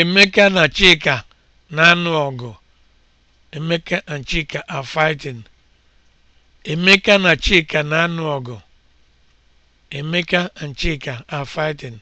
Emeka na Chika na-anụ ọgụ. Emeka and Chika na Chika na Emeka and Chika are fighting.